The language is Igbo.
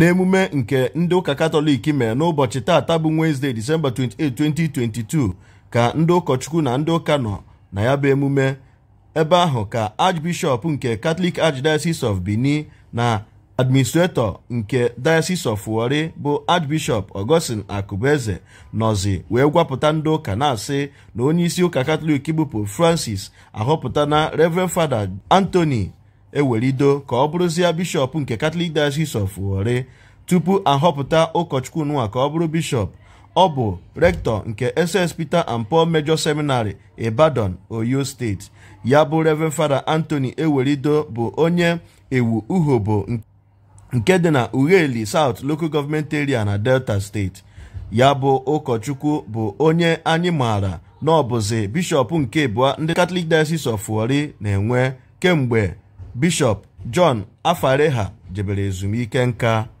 n'emume nke ndị ụka katọlik mere n'ụbọchị taata bụ Wednesday December 28 2022 ka ndị ụkọchukwu na ndị ụka nọ na ya bụ emume ebe ahụ ka Archbishop nke Catholic Archdiocese of Benin na administrator nke Diocese of Warri bụ Archbishop Augustine Akubeze nọzi wee gwapụta ndị ụka na-asị na onye isi ụka katọlik bụ Pope Francis na Reverend Father Anthony ewelido ka ọ bụrụzie bishọp nke katọlik Diocese of Warri tupu ahọpụta ụkọchukwu nwa ka ọ bụrụ bishọp ọ bụ rektọ nke SS Peter and Paul Major Seminary Ibadan Oyo steeti ya bụ Reverend Fada Anthony Ewelido bụ onye ewu uhobo nke dị na Ughelli South Local Government Area na Delta steeti ya bụ ụkọchukwu bụ onye anyị maara na ọ bụzi bishọp nke abụọ ndị katọlik Diocese of na-enwe kemgbe Bishop John Afareha jebere ezumike nka